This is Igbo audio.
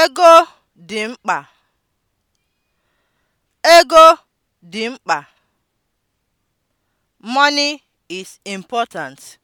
Ego dị mkpa Ego dị mkpa. Money is important.